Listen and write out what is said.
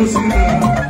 Jerusalem.